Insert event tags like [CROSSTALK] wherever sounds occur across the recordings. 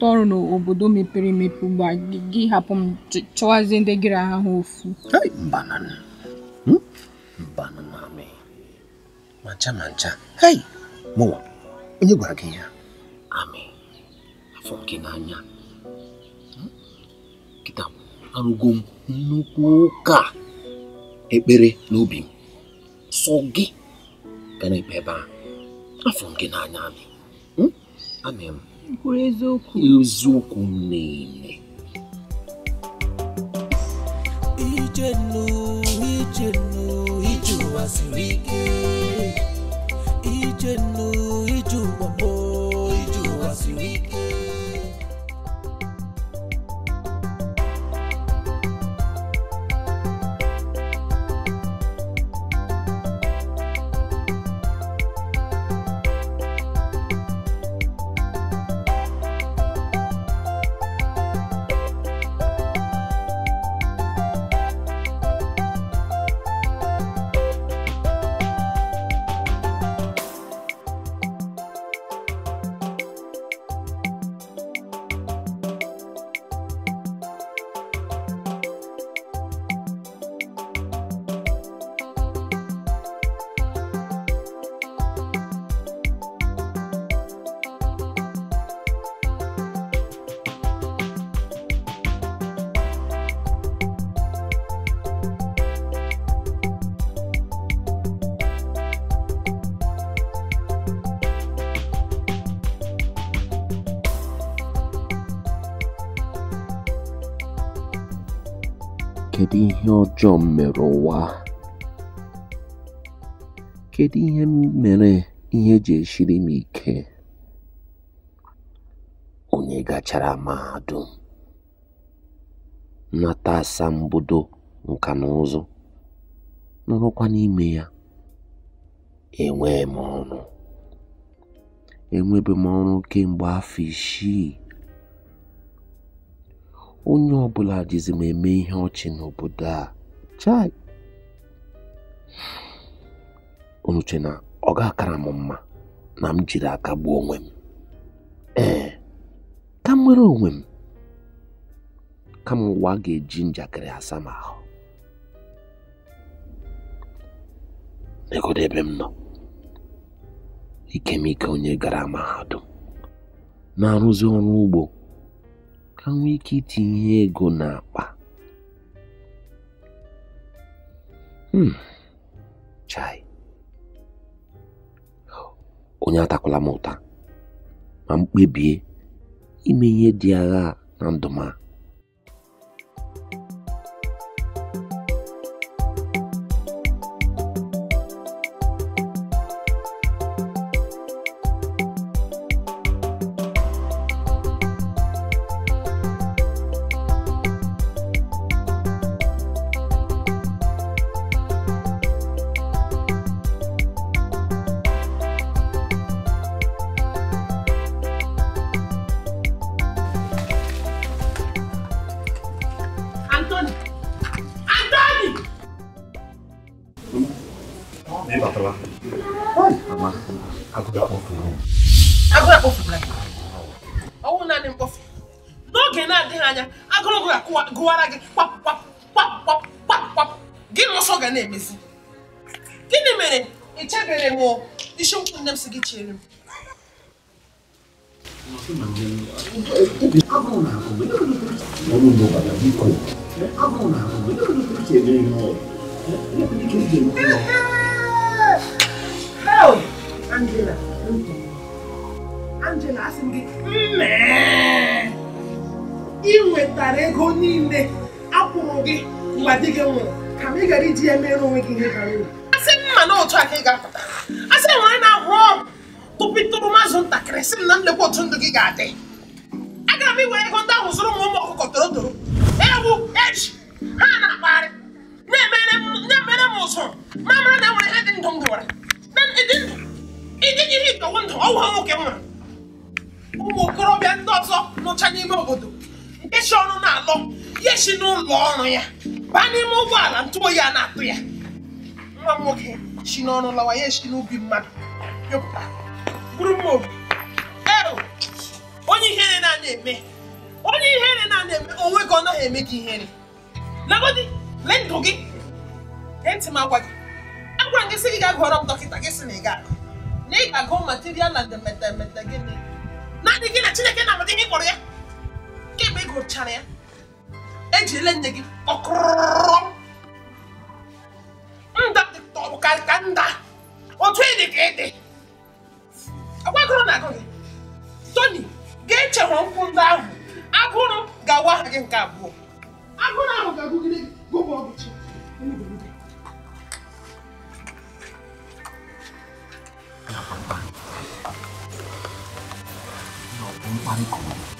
na ọrụ n'obodo mepere emepe ugbu a gị hapụ m chọwazie ndị gịrị ahụ ofu ma ncha ma ncha hei mụwa onye gwara gị ya amị afọ gị n'anya hmm? kịta arụgo m nnukwu ụka ekpere n'obi m sọ gị gara ekpe ebe a afọ gị n'anya amị hmm? amị m kwuru eziokwu eziokwu m ije ụwa siri ike ije ihe ọjọọ m mere ụwa kedu ihe mere ihe ji esiri m ike onye gachara mahadum nata asambodo nka na ụzụ nọrọkwa n'ime ya enwee m ọrụ enwebe m ọrụ kemgbe afọ isii onye ọbụla jizi m eme ihe ọchị n'obodo a chai unu na ọ ga-akara m mma na m jiri aka gbuo onwe m ee ka m nwere onwe m kama ụwa ga-eji njakịrị asa m ahụ N'egodo ebe m nọ ikemike onye gara mahadum na-arụzi ọrụ ugbo ka nwee ike itinye ego n'akpa hmm. chai onye atakwala m ụta ma m kpebie ime ihe dị agha na ndụ wepụtara ego niile akwụrụ gị mgbe di gị nwụrụ ka m ị gara iji ya mere onwe gị ihe bara uru asị m ma na otu a ka ị ga-apụta asị nwere na-ahụ ọgwụ tụpịtụrụ mazụ ntakịrị sị m na nlekwa otu ndụ gị ga-adị Aga m iwere ego ndị ahụ zụrụ m ụmụ ọkụkọ toro toro ewu eji ha na-akpagharị na-emere m ụzụ ma mara na enwere ihe dị ndụ m dụwara ịdị ndụ ịdị ihe ndụ ọwụ ha nwoke nwere ụmụ okorobịa ndị ọzọ nụcha n'ime obodo ịchọ ọrụ na-alọ ya si n'ụlọ ọrụ ya baa n'ime ụgbọala ntụ oyi a na-atụ ya nwa m nwoke si n'ọrụ lawa ya echi n'ubi mmadụ yọpụta bụrụ mma obi onye ihere na-anya eme onye ihere na-anya eme onwe gị ọ naghị eme gị ihere lagodi lee ndụ gị gee ntị m agwa gị agwa gị sị gị gaa gụọrọ m dọkịta gị sị na ị ga-agụ na ị ga-agụ material na demetemete gịnị naanị gị na Chineke na-amadị gị kpọrọ ya kemgbe ị gụchara ya ejirila nne gị ọkụrụrụrụrụm nda dịtọrọ ka nda otu ịdị ka ịdị agbagoro na agụ gị toni ga-echewere nkwụ ndị ahụ agụrụ ga-awa gị nke abụọ agụrụ ahụ ga-agụgide gụba ọgụchi mkparịta ọ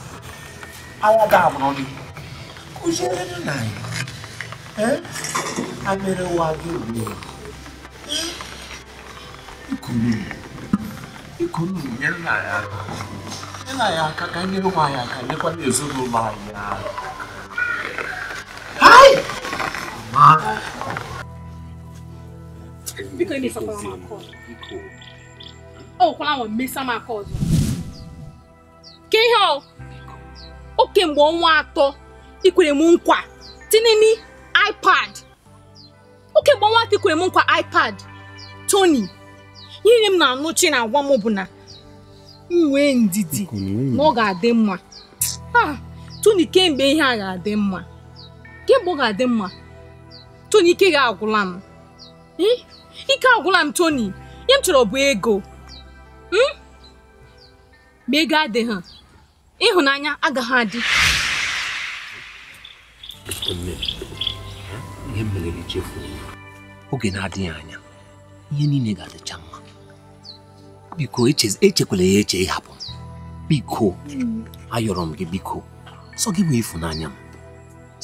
Awadabrobi. Kuzere na nai. Eh? Amere wagi ule. E Ikunu. Ikunu nyere na ya. Nyere na ya aka ka nyere nwa ya aka nyekwa na ezinụlọ anyị aka. Hai! Mama. Biko ị na-esokwara m aka ọzọ. Ọ wụkwala m mesa m aka ọzọ. Ka ihe ọ oke mgbe ọnwa atọ ikwere m nkwa tinye ipad o mgbe ọnwa atọ ikwere m nkwa ipad Tony ihe m na-anụchi na-agwa m bụ na nwee ndidi na ọ ga-adị mma Tony kemgbe ihe a ga-adị mma kemgbe ọ ga-adị mma Tony ike ga-agwụla m ike agwụla m Tony ihe m chọrọ bụ ego hmm? ma ego adịghị ịhụnanya agaghị adị ihe oge na-adịghị anya ihe niile ga-adịcha mma biko echekwala ya eche ịhapụ biko ayọrọ m gị biko sọ gị bụ ịfụnanya m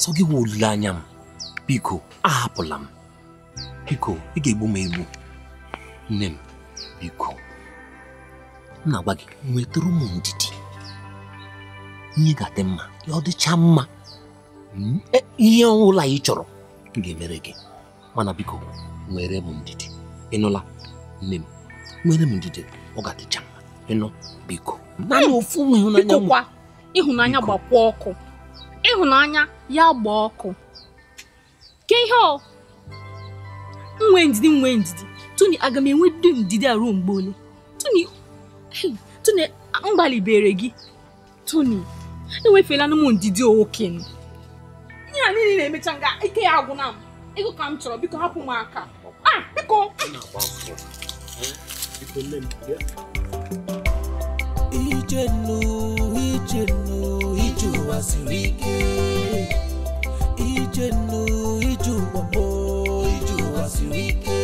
sọ gị bụ olileanya m biko ahapụla m biko ị ga-egbu m egbu nne m biko m na-agwa gị nwetụrụ m ndidi Hmm? Eh, ihe ga-adị mma ọ dịcha mma ihe ọbụla ị chọrọ ga-emere gị mana biko nwere m ndidi ịnụla nne m nwere m ndidi ọ ga-adịcha mma ịnụ biko naanị hmm. ofu ịhụnanya ịhụnanya gbakwa ọkụ ịhụnanya ya gbaa ọkụ ke ihe ọ nwe ndidi nwe ndidi tuni aga m enwe dị ndidi a ruo mgbe ole tuni tuni m gbalibere gị tuni enwefela na ụmụ ndidi okenye ihe a niile na-emecha nga ike ya agwụna m ego ka m chọrọ biko hapụ m aka biko ijenu ijenu ije ụwa siri ike ụwa siri ike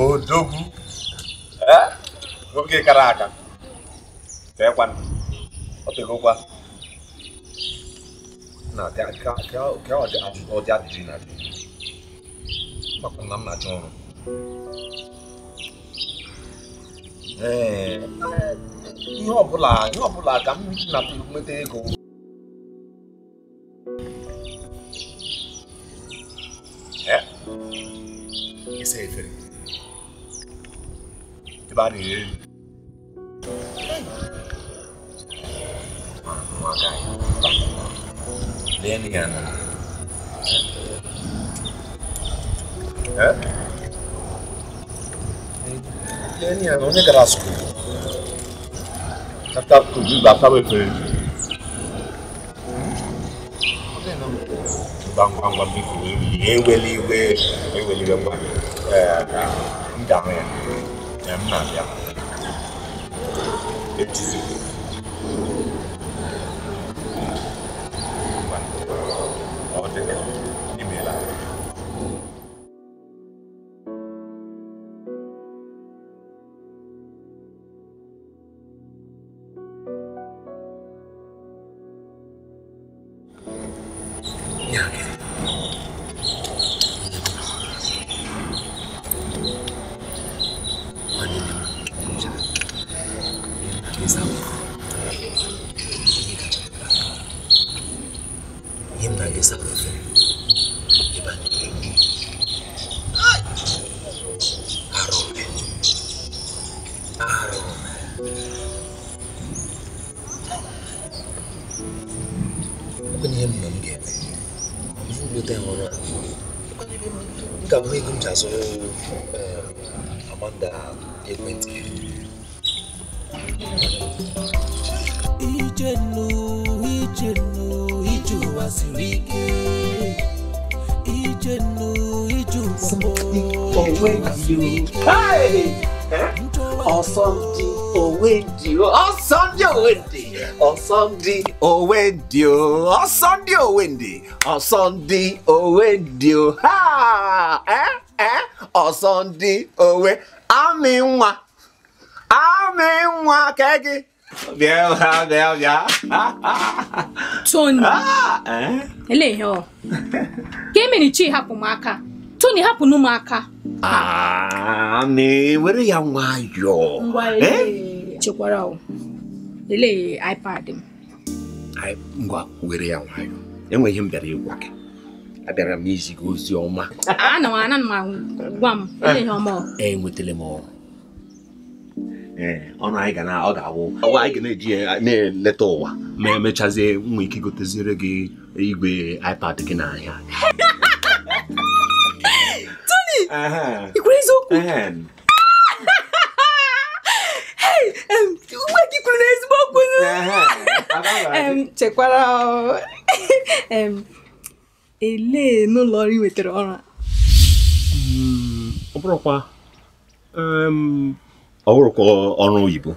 odogu oge gara aga teekwana ọ tegokwa na ka ọdị adịrị na adị makwa na m na-achọ ọrụ ihe ọbụla ihe ọbụla ka m na nweta ego ịsa efere Everybody here. Lenny and Lenny and only Grasco. After to do that, I will pay. Bang bang bang big. Eweliwe, eweliwe bang. Eh, ndame. Mükemmel ya. Hepsi ọ̀sán-di òwe di o ẹ ẹ ọ̀sán-di òwe àmì nwa àmì nwa kẹ́gì. bịa bịa bịa bịa. Tony ah, elee ihe ọ ka emerichi hapụ m aka Tony hapụ nụ m aka. Amị ah, were ya nwayọọ. Ngwa ee eh? chekwara o elee iPad m. ngwa were ya nwayọọ. enwe ihe m bịara ịgwa gị abịara m izi gị ozi ọma enwetala m ọrụ eh, ọnụ anyị ga na ọ ga-awụ ọwa anyị ga na-eji eh, na-eleta ụwa ma emechazie nwa ike goteziere gị igwe iPad gị n'ahịa [LAUGHS] Tony ikwere eziokwu [LAUGHS] uwe gị kwuru n'ezigbo okwu chekwara elee n'ụlọ ọrụ nwetara ọrụ a mm, ọ bụrụkwa ọ bụrụkwa ọrụ oyibo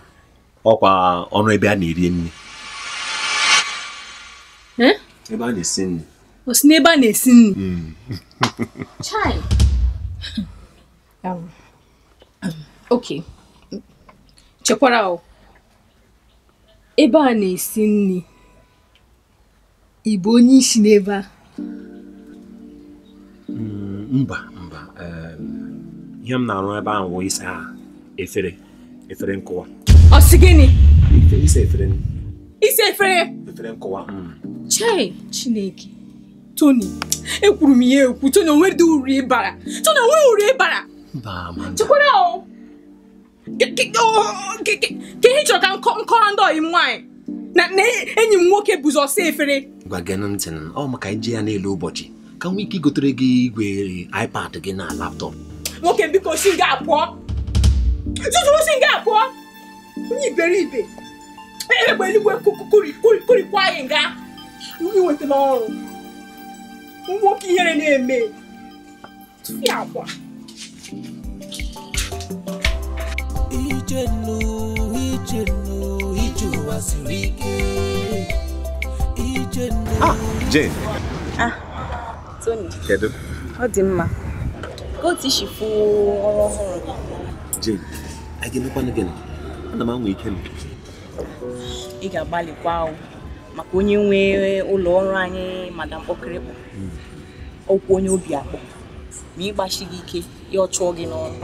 ọkwa ọrụ ebe a na-eri nri hm? ebe a na-esi nri o n'ebe a na-esi nri mm. [LAUGHS] chai ok chekwara ebe a na-esi nri ị bụ onye isi n'ebe a mm, mba mba ihe m na-arụ ebe ahụ bụ isa efere efere nkụwa ọ sị gịnị isa efere isa efere efere nkụwa mm. chee chineke Tony, ekwuru m ya ekwu onwe onwere uri ịbara Tony onwe uri ịbara chekwara ka ihe chọrọ ka nkọrọ ndị ọyị m nwaanyị na enyi m nwoke bụzi ọsọ efere gwa gị ntị ọ maka ije ya n'elu ụbọchị ka nwee ike igotere gị igwe ipad gị na laptop nwoke biko si nga apụọ tutu si nga apụọ onye iberibe e, e, egbe eluigwe kurikwa anyị nga iweta n'ọrụ nwoke ihere na-eme akwa ije nnụ ije nnụ ije ụwa siri ike Ah, Jane. Ah, Tony. Kedu? Ọ dị mma. Kootu tishifu ọrụ ọhụrụ gị. Jane, a ga-emekwanụ gịnị? Ana m anwụ ike m. Ị ga-agbalịkwa ahụ maka onye nwe ụlọ ọrụ anyị madam Okirikpọ. Ọkwụ onye obi akpọ. Ma ịgbachi gị ike, ya ọ chụọ gị n'ọrụ.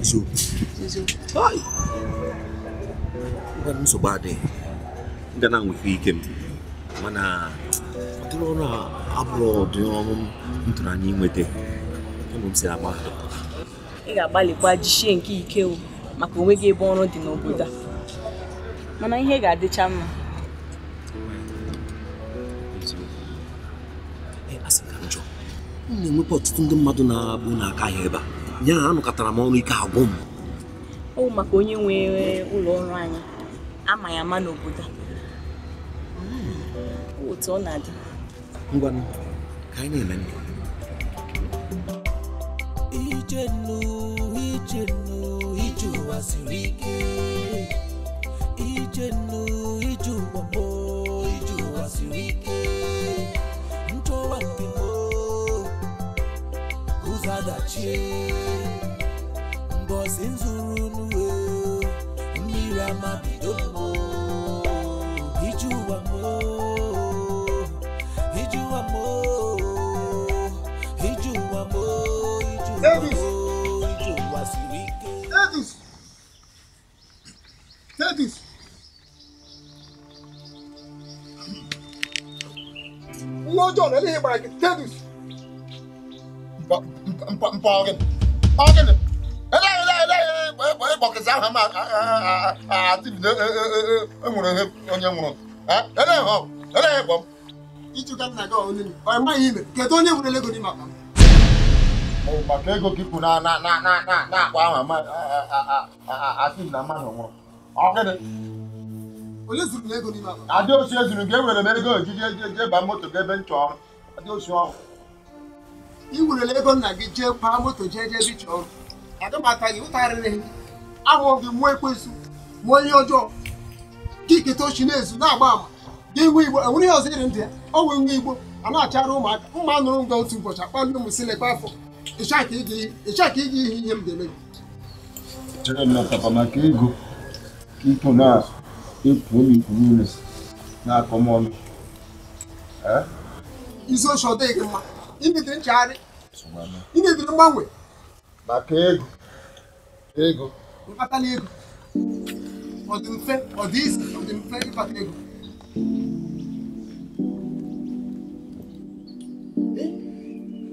Eziokwu. Eziokwu. Ngwa nsogbu adịghị. Nga na anwụ ike m. mana ọtụrụ ọrụ a abụrụ ọdị ọrụ m tụrụ anya inweta ụmụ e m si agba ị ga-agbalịkwa jichie nke ike maka onwe gị ebe ọrụ dị n'obodo a mana ihe ga-adịcha mma m na-enwekwa ọtụtụ ndị mmadụ na-abụ n'aka ahịa ebe a ya anụkọtara m ọrụ ike agwụ m ọ bụ maka onye nwere ụlọ ọrụ anyị ama ya ama n'obodo a otu ọ na-adị ngwa ka anyị na-eme ije nnụụ ije nnụụ ije ụwa siri ike ije nnụụ ije ụwa mo ije ụwa siri ike nchọwa mbimo ụzọ adachie mbọsị nzuru n'uwe mmiri ama bido mo ije ụwa mo Davis Davis Davis. lọ́jọ́ rẹ̀ lè bàrẹ̀ Davis. mpa ọ̀gẹ̀ ọ̀gẹ̀ ni eléyìí eléyìí bọ̀kìsì ahụ ma àti bido enwere onye nwụrụ eléyìí họ eléyị̀ bọ̀ m. ịchụka nna gị ọ̀hụrụ n'ime ọ maghị ime kedu onye nwere ego n'ime akpa m. maka ego gị ikwu na-akpa na na na ahụ asị na mmadụ nwụrụ adịochi ezuru gị ewere m ego ji eji jee baa moto gị ebe nchọ ọrụ adịochi ọrụ ị werela ego nna gị jee baa moto jee jee ebe ịchọ ọrụ adịmata gị ụtarịrị ahụghị mụọ ekwensu mụọ ihe ọjọọ kiketa ochi na-ezu na-agba ama gị nwe igbo enwere ihe ọzọ iri ndị ya ọ nwee nwa igbo a na-achara ụmụaka mma nụrụ nga otu ụbọchị akpali ụmụ silekwa afọ ịcha ka ị iji ihe ihe m ga-eme chere m natapa maka ego ịpụ na-ekwu m ikwu niile na-akọ m ọnụ isi oche ọ dịghị mma imediri nchegharị imediri mgbanwe maka ego ego mkpata ego ọ dị mfe ọ dị mfe ịkpata ego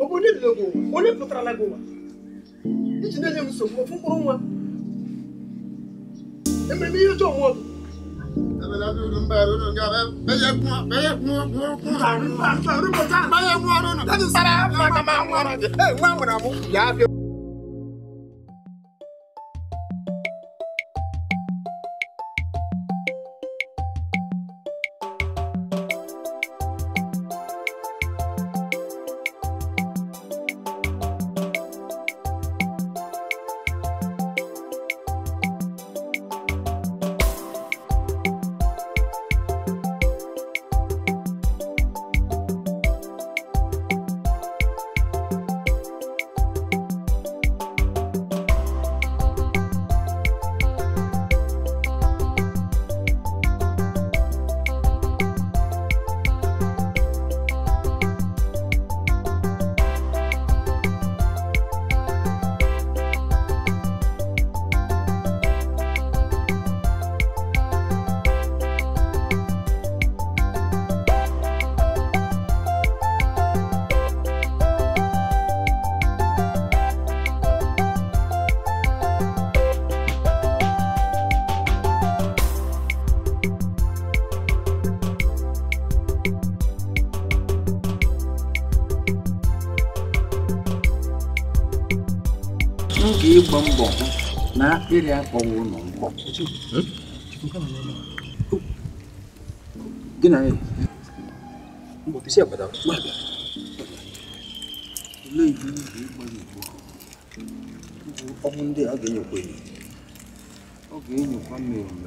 ọ bụ onye lere ụwa onye pụtara gị ụwa iji na-enye m nsogbu ofu mkpụrụ nwa ememe ihe ọjọọ nwa ọgụ nwa nwere amụ ya abịa ịgba mbọ hụ na akpịrị akpọwa ụlọ mkpọ na olee ibe ibe ịgbanye igbo a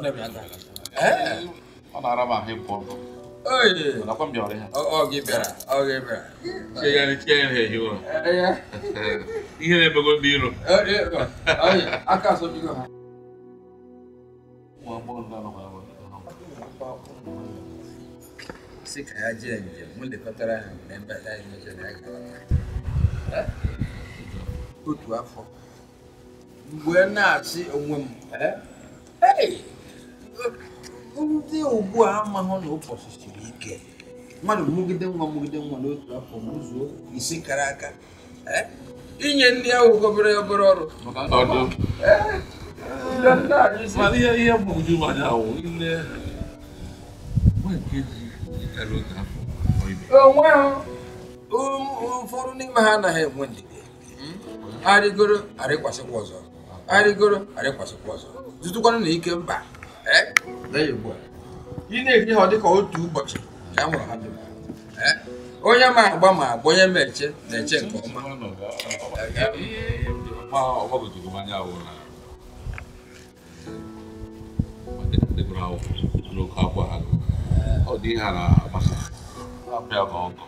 ọ na-ara m ahụ ịpụ ọkụ nakwa m bịara ya ihe na-emego ndị iro si ka ya jee njem m lekọtara ha mgbe mbata anyị n'ụzọ na ya gara otu afọ mgbe na-asị onwe m ee ndị ugbu a amahụ na ụbọchị siri ike mmadụ mmụgide nwa mmụgide nwa n'otu afọ ụzọ isi kara aka e, inye ndị ahụ obere obere ọrụ e, ihe mgbagwoju anya ahụ ile onwe ha ụfọdụ n'ime ha anaghị enwe ndidi arịgoro arịkwasịkwa ọzọ arịgoro arịkwasịkwa ọzọ zụtụkwanụ na ike mba Eh? There you go. Ị na-eri ha ọ dịka otu ụbọchị ka a mụrụ ha dịka. Onye ma agba ma agba onye ma eche na-eche nke ọma. Ọ dị ihe a na-agbasa. Ọ bịa ka ọgọ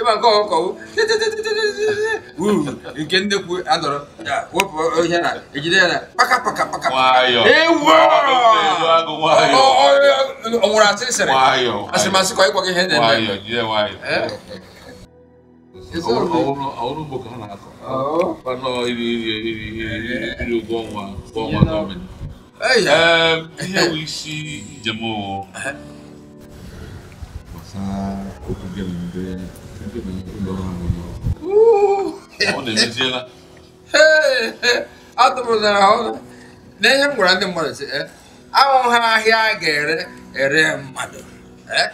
ịma nke ọkọwụ nke nnekwu adọrọ wepụ ihe na ejide ya na paka paka paka ewu ọ nwụrụ asịrị sịrị ka ịkwa gị ihe na-eme ihe bụ isi njem gbasara okwu gị na ndị atụrụzara ọnụ na m gwara ndị mmadụ si eh, Ha ahịa a ga-ere ere mmadụ eh,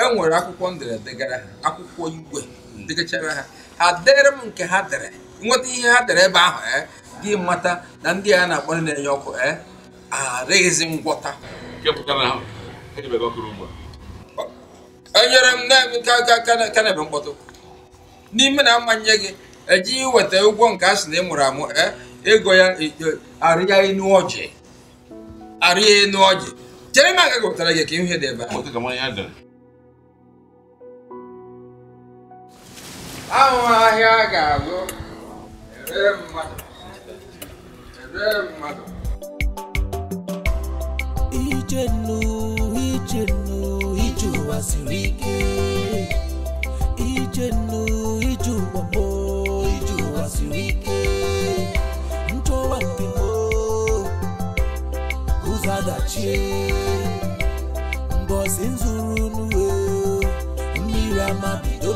e nwere akwụkwọ ha, gara ha akwụkwọ igwe degachara ha ha dere m nke ha dere nweta ihe ha dere ebe ahụ eh, gị mata na ndị ha, na-akpọ ha na-enye ọkụ ha ngwọta enyere m na kenebe mkpọtụ n'ime na mmanye gị eji weta ụgwọ nke a sị na ị mụrụ amụ e, ego ya e, e, arịa enu ọjị arịa enu ọjị chere m aga wetara gị ka ihe dị ebe ahụ ahịa a ga-alụ ere mmadụ ụwa ijenu ike ije nnu ije ụwa gboo ije ụwa siri ike nzuru n'uwe mmiri ama bido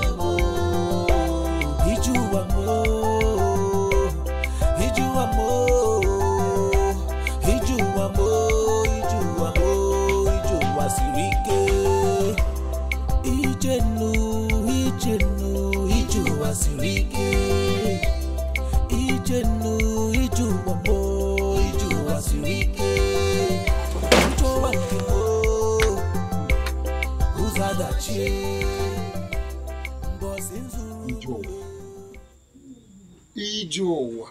Ichenu, Ichenu, Iju Asirike. Ichenu, Iju Wambo, Iju Asirike. Ucho Wakimo, Uzadachi. Ije ụwa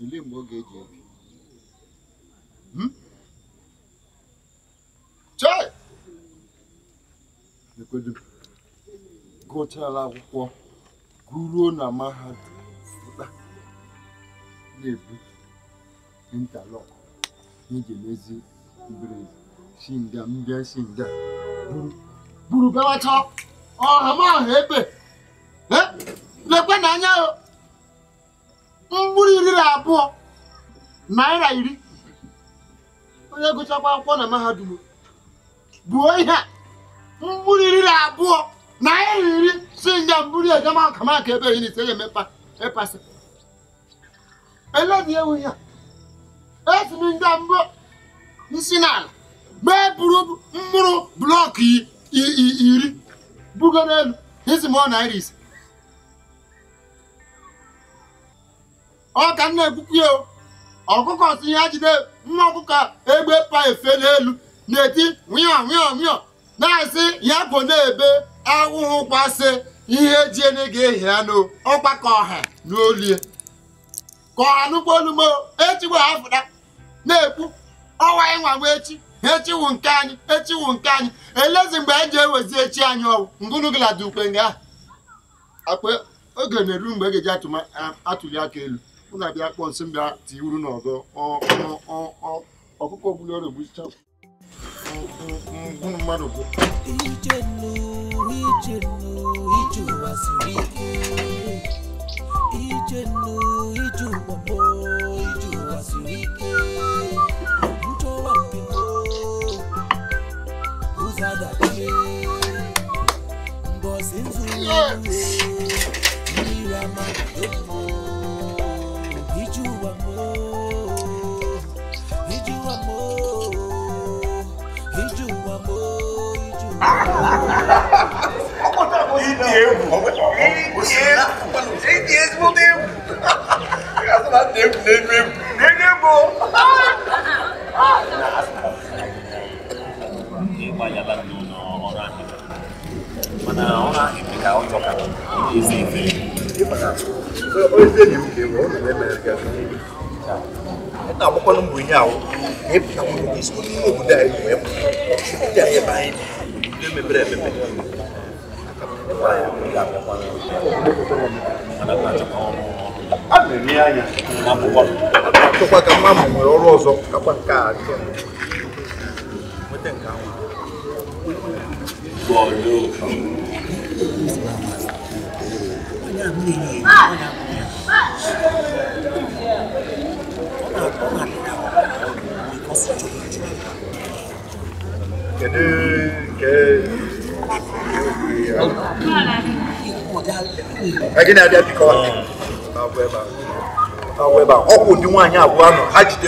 ile mgbe ọ ga-eji ebi chai ekwedu gụchara akwụkwọ guruo na mahadum pụta na-ebu intalọk eji emezi mberede mbịa si nga buru bewacha ọha m ebe e, lekwe n'anya mkpụrụ iri na abụọ naira iri onye gụchakwa akwụkwọ na mahadum buo ihe a iri na abụọ na iri si njem buru ejema akamaka ebe na n'ise ya emepa ịpasị eledi ewu ya esi m njem mbụ nsi n'ala mee buru mkpụrụ blọk iri bugo n'elu isi m ọ naira ise ọ ka m na-ekwukwu ya ọkụkọ si ya jide mma ọkụkọ egbe pa efe n'elu na-eti nwịọ nwịọ na-asị ya bụ na-ebe ahụhụ kwasị ihe jiene ga-ehi anụ ọkwa ka ọha n'olie ka ọha nụkwa olumo echigwa afụda na ekpu ọwa ịnwa nwa echi echiwu nke anyị echiwu nke anyị elezi mgbe e ji ewezi echi anyị ọwụ ngụnụ gị lada ukwe nga akpa oge na-eru mgbe e ga-eji atụli aka elu ụna bịa kpọọ nsị mbịa tiwuru n'ọgọ ọkụkọ ọbụla egbuchicha mmadụ bụ ije nnu ije nnu ije ụwa siri agị na-abịa bikọ ọwụ ebe a ọkụ ụdị nwaanyị abụọ nọ ha jide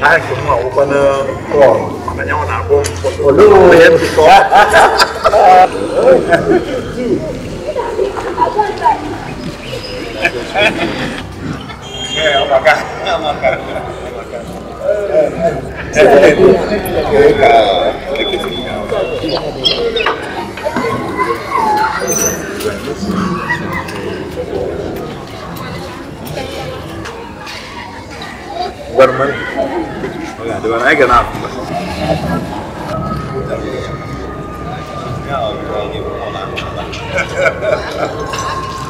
hai cũng ngầu con ờ, cỏ mà nhau nào cũng một lúc hết thì có nghe ông bà cả ông bà cả Hãy subscribe Spider-Man. Oigan, de van a ganar.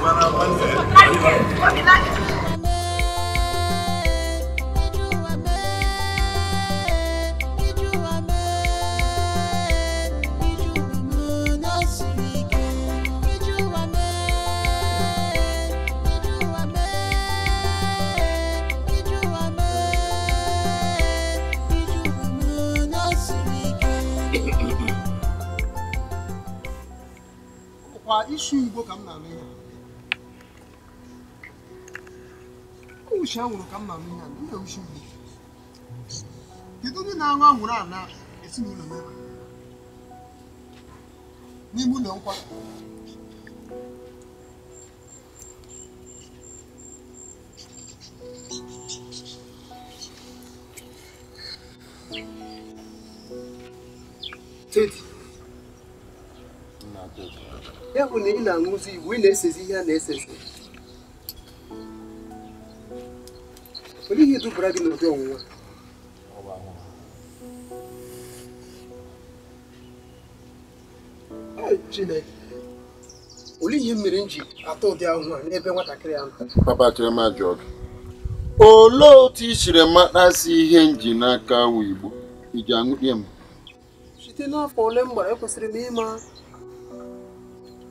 Bueno, bueno. 你给我干嘛的？我下午干嘛的？你有说的，你昨天那晚我那，也是你明白吗？你不能块？这。ya bụ na ị na-aṅụzi igbo ị na-esezi ihe a na-esezi olee ihe dubara gị n'ụdị ọnwụnwa chineke olee ihe mere m ji atọ ụdị ahụhụ a n'ebe nwatakịrị ahụ papa chirema jụọ gị olee otu i siri matasi ihe nji n'aka wu igbo iji aṅụlie m site n'afọ ole m gbara ekwesịrị m ịma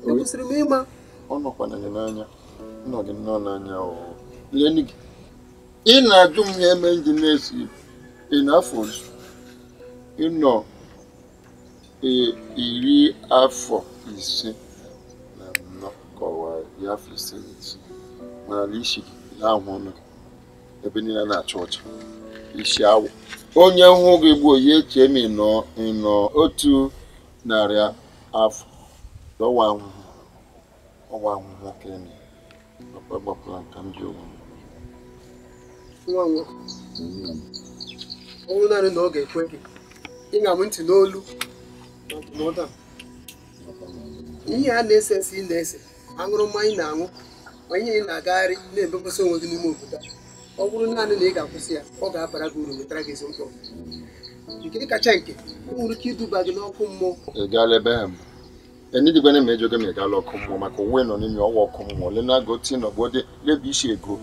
e kwesịrị m ịma ọ nọkwana n'anya nọ gị nnọọ n'anya leni gị ị na-ajụ m ya eme ndị na-esi ị na-afọ ozu ịnọ iri afọ ise na nnọkọwa kọwara ya afọ ise na ise mana isi na-ahụ ọnụ ebe niile na achọ ọcha isi awụ onye hụ gị gboo ya echee m ịnọ otu narị afọ ọwa ahụhụ ọwa ahụhụ nwoke emi papa gbapụra nka m ji ụgwọ nwa nwa ọ bụrụ naanị na ọ ga-ekwe gị ịṅa m ntị n'olu na ndụmọdụ a ihe a na-ese ese ị na-ese aṅụrụ mmanya na-aṅụ ma ihe ị na-agagharị na-ebepụsị onwe gị n'ime obodo ọ bụrụ naanị na ị ga-akwụsị ya ọ ga-abara gị uru wetara gị ezi mkpọrọ nke kacha nke o nwere ike iduba gị n'ọkụ mmụọ ẹni bene ma ejoge ma ịgala ọkụ mmụọ maka onwe nọ n'imi ọnwa ọkụ mmụọ ole na agoti na ọgbọdị isi ego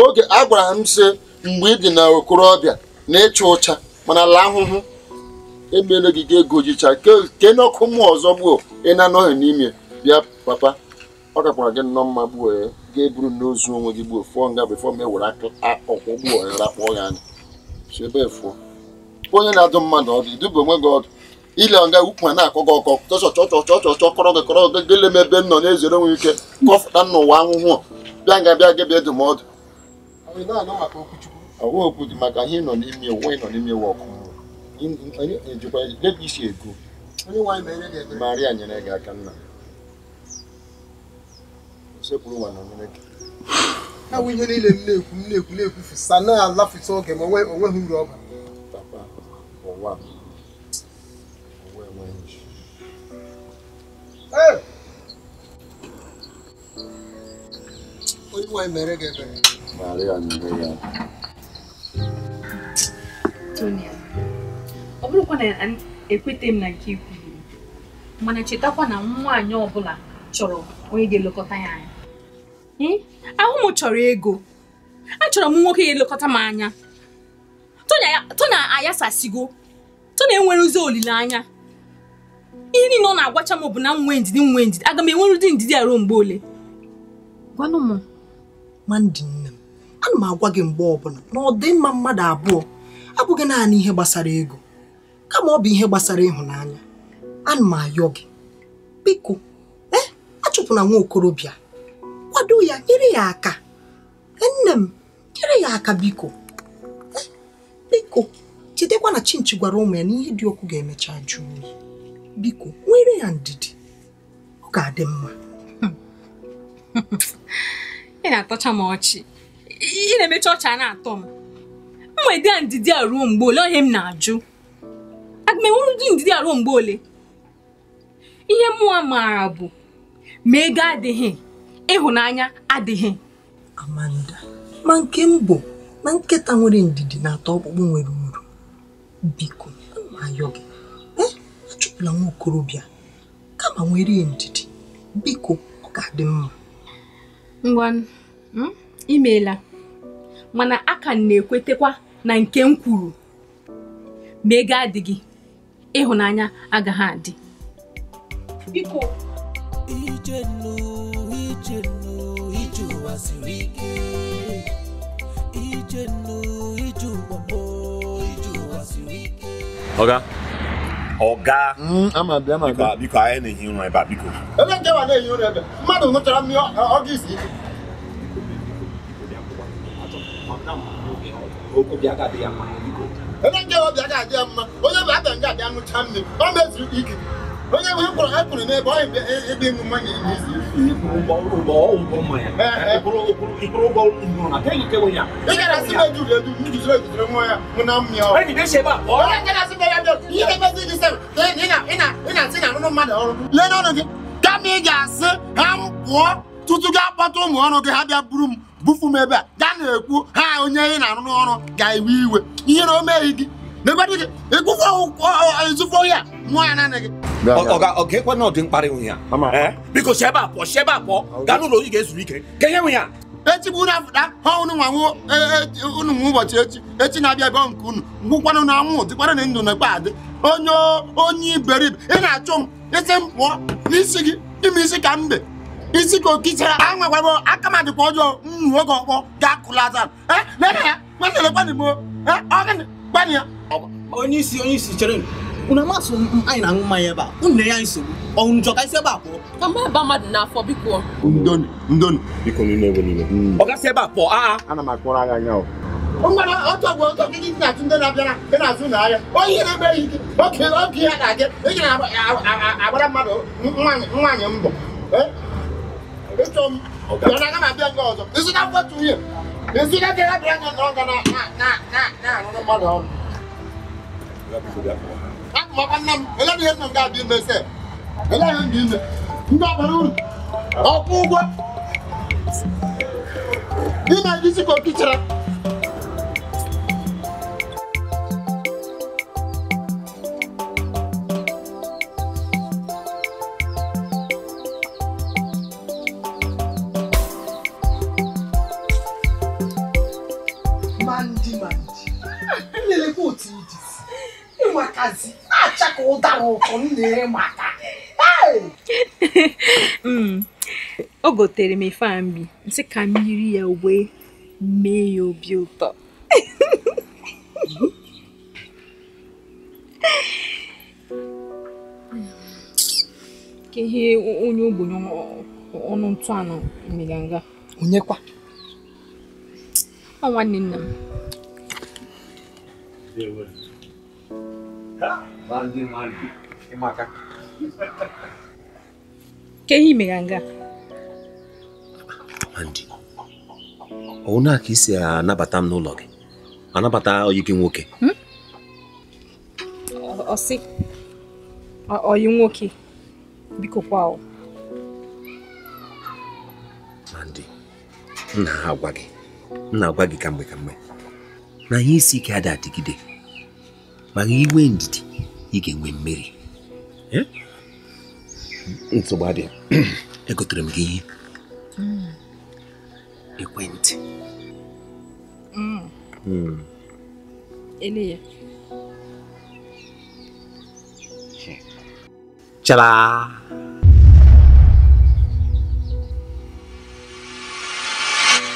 oge a gwara m sị mgbe ị dị na okorobịa na ịchụ ụcha mana ala ahụhụ emele gị ga ego jicha ke n'ọkụ mmụọ ọzọ gbuo ị na-anọghị n'ime bịa papa ọ gakwara gị nnọọ mma gbuo ya ga-eburu n'ozu onwe gị gbuo fụọ nga bụ fọm ewere ọkwụ gbuo ya rakpọọ ya anya so ebe onye na-adụ mmadụ ọdụ iduba onwe gị ọdụ ile ọga ukwu a na-akọ gị ọkọ chọchọ chọchọ chọchọ kọrọ gị kọrọ gị gele m ebe m nọ na-ezere onwe ike kọfụta n'ụwa ahụhụ bịa nga bịa gị bịa ndụmọdụ okwu dị maka ihe nọ n'ime ụwa n'ime ụwa ọkụ debe isi ego marịa nyere gị aka nna na nyere gị ha ihe niile m na-ekwu m na na na-alafụta oge ma onweghị uru onye nwe mere gị ebere Tony ọ bụrụkwa na ekweta m na nke ikwu mana chetakwa na nwaanyị ọbụla chọrọ onye ga-elekọta ya anya hmm? ahụ m chọrọ ego achọrọ m nwoke ga-elekọta m anya Tony ayasasigo Tony enwerezi olileanya ihe niile ọ na-agwacha m bụ na m nwee ndidi nwee ndidi aga m enwere ụdị ndidi aruo mgbe ole gwanụ m ana m agwa gị mgbe ọbụla na ọ dị mma mmadụ abụọ abụghị naanị ihe gbasara ego kama ọ bụ ihe gbasara ịhụnanya ana m ayọ gị biko ee eh, achụpụna nwa okorobịa kwado ya nyere ya aka eh, nne m nyere ya aka biko eh, biko jidekwa na chinchi gwara ụmụ ya na ihe dị okwu ga-emecha jụụ biko nwere ya ndidi ọ ga-adị mma ị na-atọcha m ọchị ị na-emecha ọcha na-atọ m mwede a ndidi a ruo mgbe ole ohe m na-ajụ aga m ụdị ndidi a ruo mgbe ole ihe mmụọ maara bụ ma ego adịghị ịhụnanya adịghị Amanda ma nke m bụ na nketa nwere ndidi na-atọ ọkpụkpụ nwere uru biko ayọ gị na nwa okorobịa kama nwere ndidi biko ọ ga-adị mma ngwa hmm? imeela mana aka na-ekwetekwa na nke m kwuru ma ego adịghị ịhụnanya agaghị adị biko ije ije ụwa siri ike ije ọga ọga biko anyị na-ehi ụra ebe a biko ebe nke wa na-ehi ụra ebe mmadụ ṅụchara mmiri ọga ebe nke obi agaghị adị ya mma onye bụ abịa nga abịa ṅụcha mmiri ọ mezuru ike onye ahụ akpụrụ akpụrụ n'ebe ọ ebe ịṅụ mmanya ị gara asị na ejuru edu njuziri ejuziri nwa ya mụ na mmịa ọ nke na ya gị ị na ọrụ gị kama ị ga-asị ha m pụọ tutu ga akpọta ụmụ ọrụ gị ha bịa buru m bufu m ebe a gaa na-ekwu ha onye ị na-arụ n'ọrụ ga-ewe iwe ihe na o meghị gị ya ga na ọ dị mkparị nwunye ya biko si a pụọ si a pụọ gaa n'ụlọ oyi ga-ezuru ike ka ihe nwunye ya echibu unu ha unu nwa unu nwa ụbọchị echi echi na-abịa nke unu ngwụkwanụ na anwụ dịkwara na ndụ adị onye onye iberibe ị na-achụ m isi m pụọ n'isi gị ime isi ka mbe isi ka okitara anwakwabo aka m adịkwa ọjọọ gbanị ya onye isi onye isi chere unu amasị anyị na-aṅụ mmanya ebe a unu na ya nsogbu ọnwụ njọ ka isi ebe a pụọ ka mgbe ebe mmadụ n'afọ biko ndonu ndonu biko niile ebe niile mm. ọ gasị ebe a pụọ aa ana m akpọrọ agha anya ọ mgbara ọtọ bụ ọtọ gị ndị na atụ ndị na-abịara ndị na-azụ na ahịa onye na-eme ihe oke oge ya na-aga ị na-agbara mmadụ nwaanyị nwaanyị mbọ ịchọ m ọ na-aga m abịa nke ọzọ ịzụta mkpọtụ nwunye Esi ka kɛ ka bila ka na na na na na nɔnɔ ma dɔn. A kuma ka na ele bi ye nɔ k'a di mɛ sɛ ele yɛrɛ di mɛ n t'a ụkwụ [LAUGHS] o gotere m ife mbi nsị ka m yiri ya uwe mee ya obi ụtọ ihe onye ogbenye ọnụ ntụ anụ mere onyekwa ọ nwanne nna m ke ihe Imaka. Ke hii meganga. Andy. Ona ka isi anabata m n'ụlọ gị. Anabata oyi gị nwoke. Hmm? Ọsị. Oyi nwoke. Biko kwa ọ. ndị Nna ha agwa gị. Nna agwa gị kamgbe mgbe Na ihe isi ike adị adịgide. Maka inwe ndidi i ga-enwe mmiri nsogbu adịghị [CLEARS THROAT] egotere m gị ihe mm. ekwentị mm. Mm. chala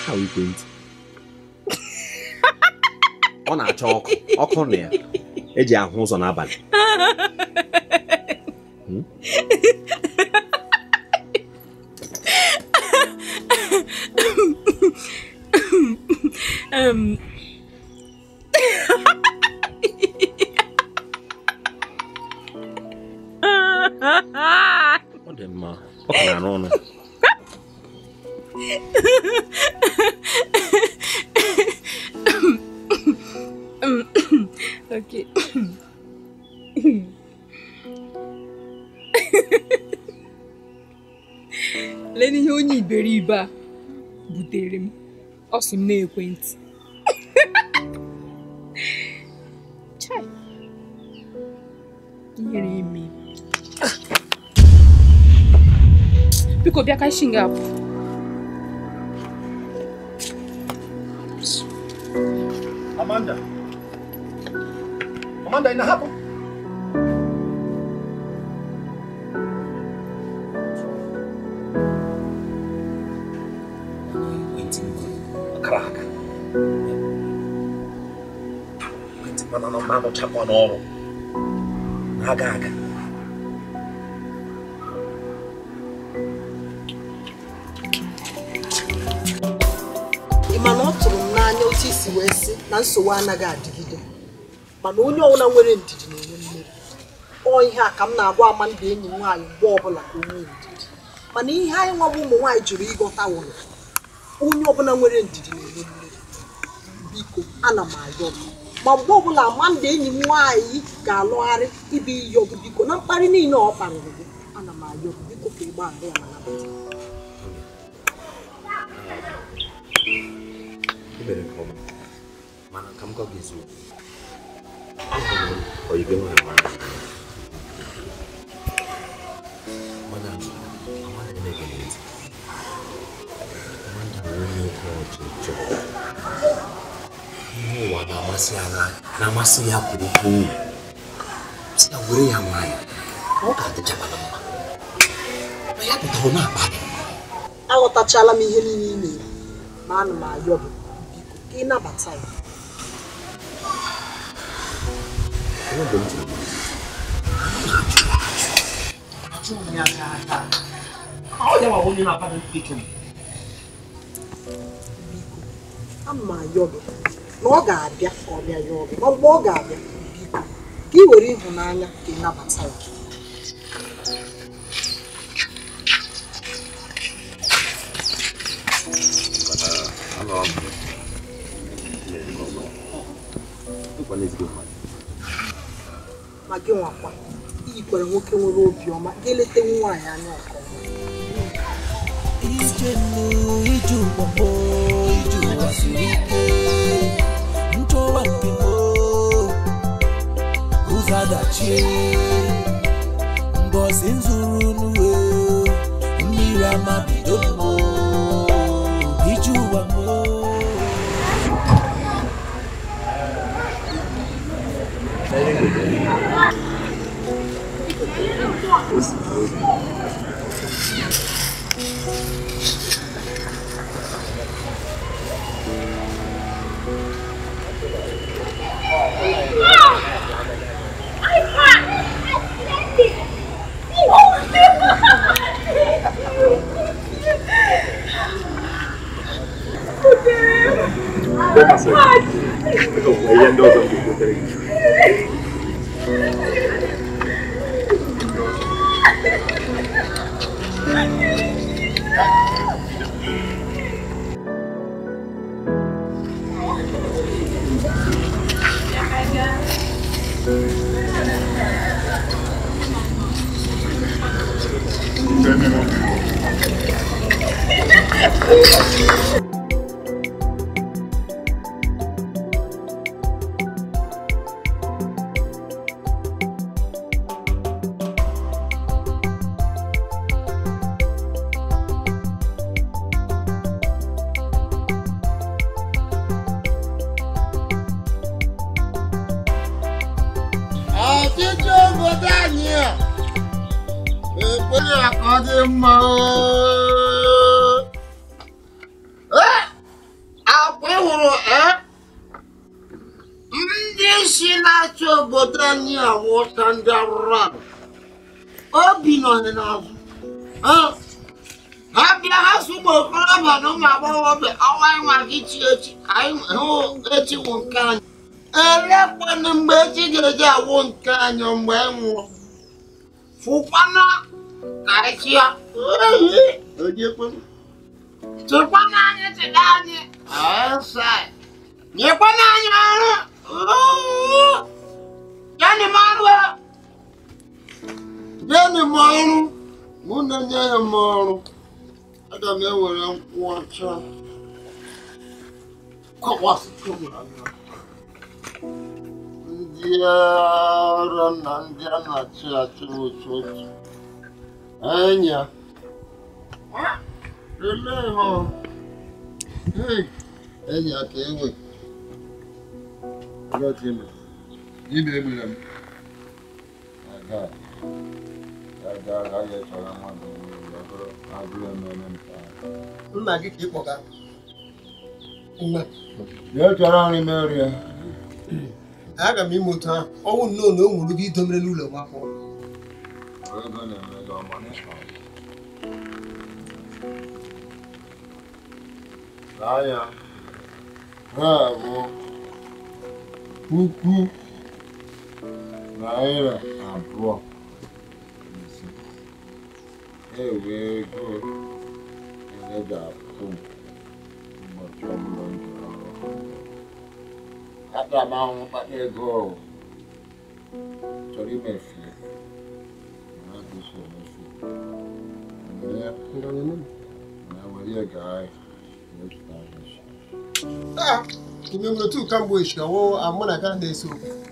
[LAUGHS] ọ na-acha ọkụ ọkụ na ya eji ahụ ụzọ n'abalị hmm? [LAUGHS] [LAUGHS] [LAUGHS] um asị m n'ekwentị chai ihere ime biko bịa ka shi nga apụ rụchakwa n'ọrụ aga aga ị ma na ọ tụrụ m n'anya otu isi wee sị na nsogbu anaghị adịgide mana onye ọbụla nwere ndidi na-enwe mmeri ọ ihe a ka m na-agwa ndị enyi nwaanyị mgbe ọbụla ka onwe ndidi mana ihe anyị nwa bụ ụmụ nwaanyị jụrụ ịghọta wụrụ onye ọbụla nwere ndidi na-enwe mmeri biko ana m ayọ m ma mgbe ọbụla manda enyi m nwaanyị ga-alụgharị ibi iyi biko na mkparị niile ọ kparịrị gị ana m ayọ ọgụ ka ịgbaghara ya ma nabata ka muwa namasi amai namasi yakuku sitagure yamai okatechabana mama yakutaona abale ini m ihe niile ị na-eme ma anụ m ayọ bụ biko ka ịnabata ya biko ama ayọ bụ n'ọga-abịa ka ọ bịa ya ọbịa ma mgbe ọ ga-abịa ka ị were ịhụnanya ka ị nabata ya ma gị nwakwa iyikwara nwoke nwere obiọma ga nwaanyị anya ọkọma ọchị mbosi nzuru n'uwe mmiri ama bido mmụ ije ụwa m Thank you. Nintendo ọka ndị arụrụ arụ obi nọ n'azụ ha bịa ha so ụmụ okorobịa na ụmụ agbọghọbịa ọwa nwa gị chi echi hụ echi wụ nke anyị elekwana mgbe echi ga-eji awụ nke anyị mgbe anyị nwụọ fụkwana karịsịa tụkwana anyị chịda anyị nyekwana anyị ọrụ Yani marwa. Yani maru. Muna nyaya maru. Ada me wera nkwacha. Kwa wasu kuma. Ndiyara na ndiyana chi achi wuchochi. Anya. Eh? Lele ho. Hey. Anya kewe. Ndiyara Ibe egbere m. Nna gị ka ị kpọga. chọrọ nri meri ya. Aga m ime otu ahụ. Ọnwụ nnọọ na o nwere gị idomere n'ụlọ m afọ. na n'anya. Ha bụ puku naira abụọ e wee goro ele ga-apụ m ụbọchị ọbụla m jiri ọrụ aga m ahụ mkpata ego chọrọ imefu na-adịghị emefu na were gaa mepụta ahịa ime mgbe tu kamgbe ishi ọwụ amụ na ka na-eso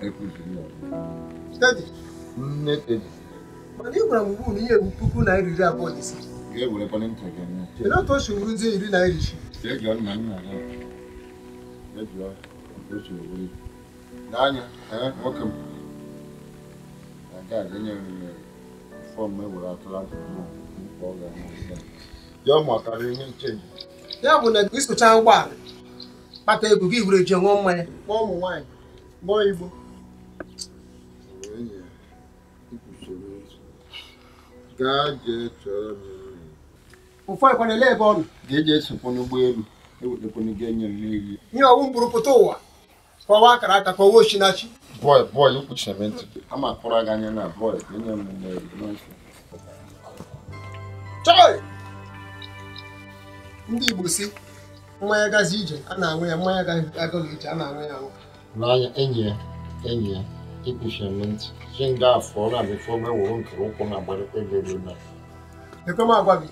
okwu nne tedi mana ị gwara m ugbu na ihe bụ puku naira iri abụọ na ise kedụ otu o si wuru ndị iri naira isi n'anya nwoke m ga-aganye fọm ewere atụrụ atụrụ ihe nche ya bụ na ị sụchaa ụgbọala kpata ego gị were ji ṅụọ mmanya ma ụmụ igbo gaa jee chọrọ m nri ụfọdụkwana ele ebe ọ ga-eji esokwa n'ụgbọelu ewetakwana enye m ihe ọwụ mgburu pụta ụwa kọwa akara aka kọwa ochinachi bọị bọị kwuchiri m ntị ama gị anya na bọị chọị ndị Igbo si mmanya gazi ije a na anwụ ya mmanya agaghị ije a na anwụ ya aṅụ n'anya enyi ya enyi ya ikushemi ntị ji nga afọ ọ na-abịafe ogbe wụrụ nkere ụkwụ na agbalịkwa ego elu na ekwe m agwa gị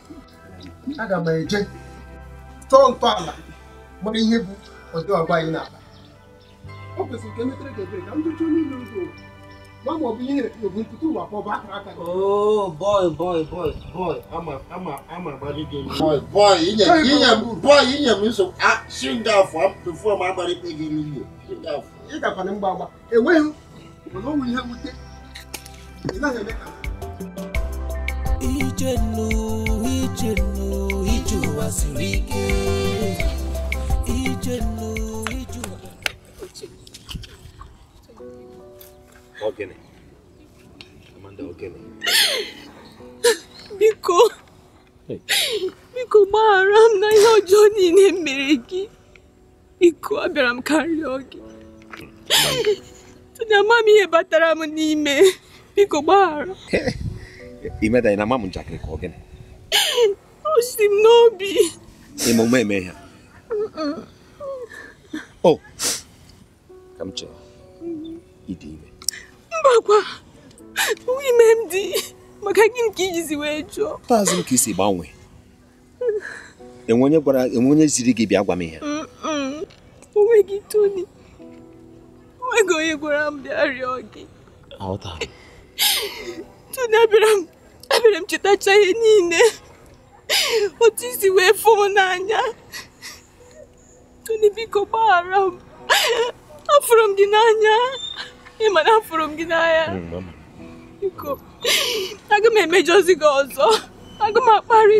aga m eje chọọ ntọala mara ihe bụ ọdị ọgba anyị n'ala ọ kwesịrị ka emetere gị ebere ka m dochie onye ile ụzọ ma ma ọ bụ ihe obu nkụta ụwa pọbụ akara aka oo bọị bọị bọị bọị ama ama ama agbalị gị bọị bọị inye inye m bọị inye m nsogbu a si nga afọ tufuo m agbalị ikpe gị n'ihe ị gakwana mgba agba enweghị olóhùn ihe wute ịla ha eme ka ije nnu ije nnu ije ụwa siri ike ije nnu ije ụwa ogene Amanda ogene biko biko gbaghara m na ihe ọjọọ niile mere gị biko abịara m karịa gị ama m ihe batara m n'ime biko gbaghara imedanyị na ama m njakịrị ka ọ gịnị o si m n'obi emume eme ha o ka m chere ịdị ime mbakwa ime m dị maka gị nke ijizi wee jụọ taazị m ka isi gbanwee enwe onye ziri gị bịa gwa m ihe onweghị toni enweghị onye gwara m bịa rịọ gị tụna abịara m abịara m chetacha ihe niile otu isi wee fụọ n'anya tụna biko gbaghara m afụrụ m gị n'anya ịma na afụrụ m gị n'anya biko aga m emejọzi gị ọzọ aga m akparị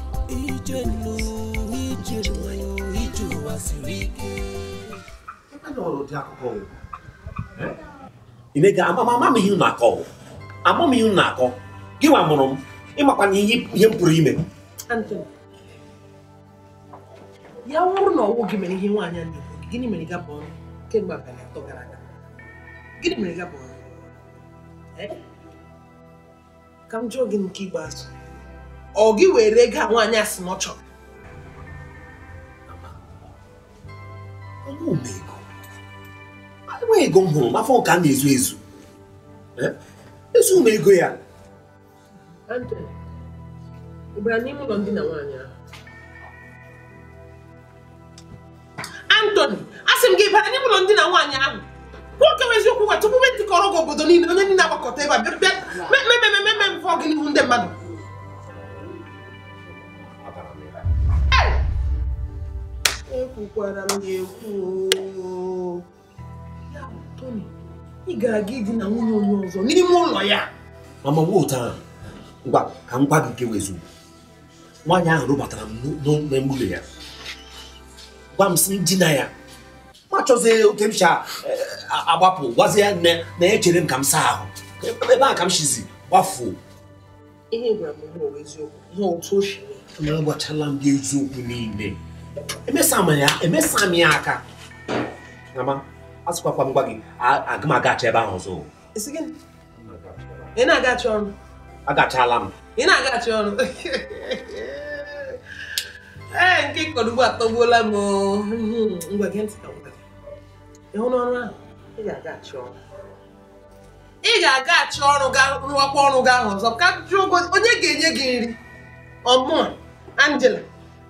ìjẹnu ìjẹnu ìjù wá sí rí. ịnega amama m ihe na-akọ ama m ihe na-akọ gị nwa mụrụ m ịmakwa na ihe m pụrụ ime ya wụrụ na ọnwụ gị mere ihe nwaanyị a na-ekwu gịnị mere ga bụ ọrụ kemgbe abalị atọ gara aga gịnị mere ga bụ ọrụ ka m jụọ gị nke ikpeazụ ọ gị were gaa nwaanyị a sị na ọ chọrọ enweghị ego m hụrụ mafọ ka a na-ezu ezu ezu m ego ya Anthony asị m gị bara n'ime ụlọ ndina nwaanyị ahụ nwoke nwe eziokwu nwa tupu nwetịkọrọ gị obodo niile onye ndị na agbakọta ebe a bịa mmemme mmemme mmemme mfọ gị n'ihu ndị mmadụ kwukwara m ya ekwu ya bụ Tony ị ga-aga na nwunye onye ọzọ n'ime ụlọ ya mama wotara ngwa ka m gwa gị nke wezu nwaanyị ahụ rụbatara m n'emume ya gwa m si dina ya ma chọzie oke m cha e, agbapụ gwazie ya nne na echere m ka m saa ahụ ebe a ka m shizi gbafuo ihe gwara m eziokwu ihe otu o si m m gị eziokwu niile emesa m ya aka asịkwakwa m gwa gị aga m agacha ebe ahụ ọzọ ị na-agachi ọrụ agachala m ị na-agachi ọrụ ee nke ịkọrọ ugbo atọgbuola m ngwa gị ntị ka ị hụ n'ọrụ ahụ ị ga-agachi ọrụ ị ga-agachi ọrụ ga rụọkwa ọrụ gị ahụ ọzọ ka jụọ onye ga-enye gị nri ọmụa Angela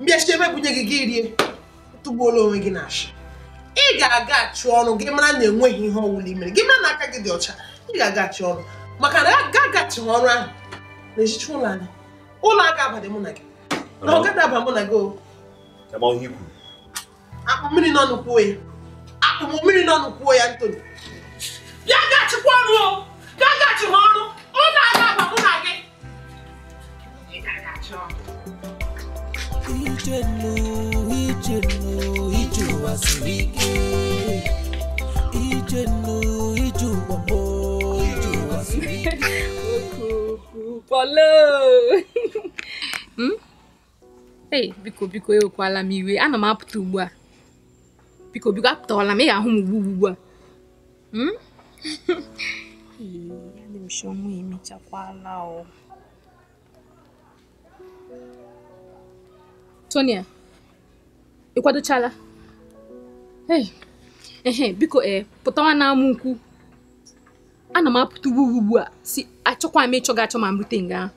mbịachiebe bunye gị gị rie tụgbuola onwe gị na asha ị ga-aga achụ ọnụ gị mara na enweghị ihe ọwụla imere gị mara na aka gị dị ọcha ị ga-aga achị ọnụ maka na aga agachighị ọrụ ahụ na echichi ụlọ anyị ụlọ aga abadị mụ na gị na ọ gada aba mụ na gị akpụ mmiri n'ọnụ kwuo ya akpụ mmiri n'ọnụ kwuo ya ntoni bịa gachikwa ọrụ o gaa ha ọrụ ụlọ aga aba mụ na gị ị ga-agachi ọrụ biko biko ewekwala m iwe ana m apụta ugbu a biko biko apụtawala m ị ahụ m ugbu ugbu a hmm? emechakwala o Tonia ị kwadochala ehe biko ee eh, pụtawa na nkwu ana m apụta ugbu ugbu a si achọkwa m ịchọ gị achọ ma m rute nga ahụ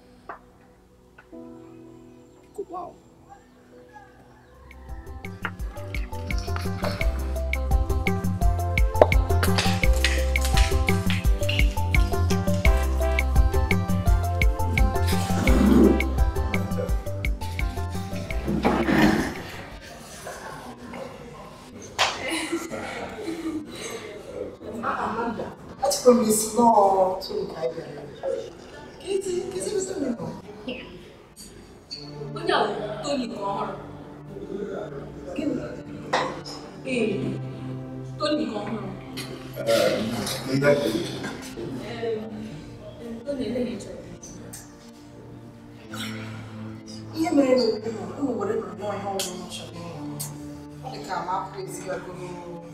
什么意思咯？从开边，开始开始不是没弄。我讲的独立工号。嗯，独立工号。呃，你讲的。嗯，独立的意思。也没弄，我我也不知道，然后就什么。我一看，妈，这是要给我。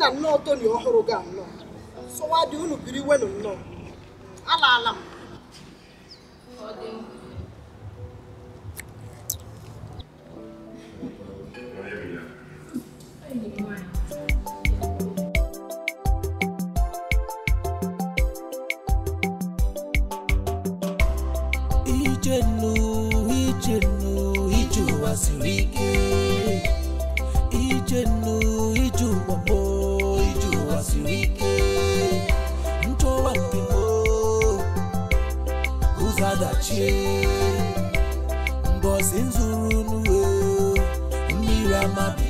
na nnọọ toni ọhụrụ ga nnọọ sọwadị unu biri wenu nnọọ alaala m echi in nzuru n'uwe